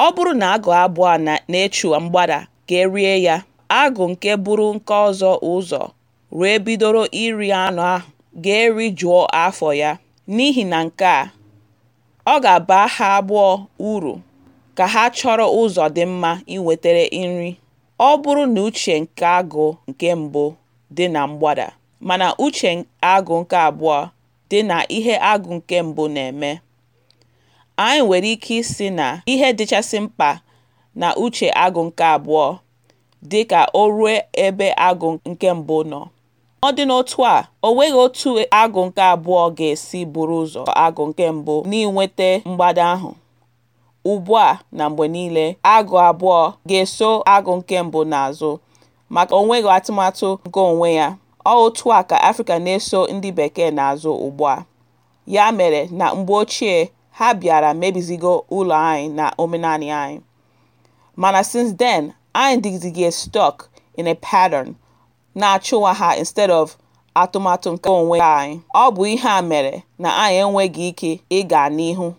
Ọ bụrụ na agụ abụọ na-echu mgbada ga erie ya, agụ nke bụrụ nke ọzọ ụzọ wee bidoro iri anụ ahụ ga eri jụọ afọ ya. N'ihi na nke a, ọ ga-aba ha abụọ uru ka ha chọrọ ụzọ dị mma inwetara nri, ọ bụrụ na uche nke agụ nke mbụ dị na mgbada, mana uche agụ nke abụọ dị na ihe agụ nke mbụ na-eme. Anyị nwere ike isi na ihe dịchasị mkpa na uche agụ nke abụọ, dị ka o ruo ebe agụ nke mbụ nọ. ọ dị n'otu a, o nweghị otu agụ nke abụọ ga-esi bụrụ ụzọ agụ nke mbụ n'inweta mgbada ahụ. Ugbu a na mgbe niile, agụ abụọ ga-eso agụ nke mbụ n'azụ, maka onweghị atụmatụ nke onwe ya. Ọ otu a ka Afrịka na-eso ndị Bekee n'azụ a Ya mere, na mgbe ochie, ha bịara mebizigo ụlọ anyị na omenanị anyị, mana since then anyị dịzịga stuck in a pattern na-achụwa ha instead of atụmatụ nke onwe anyị, ọ bụ ihe a mere na anyị enweghị ike ịga n'ihu.